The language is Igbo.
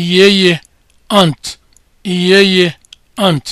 iyeye ant. iyeye ant.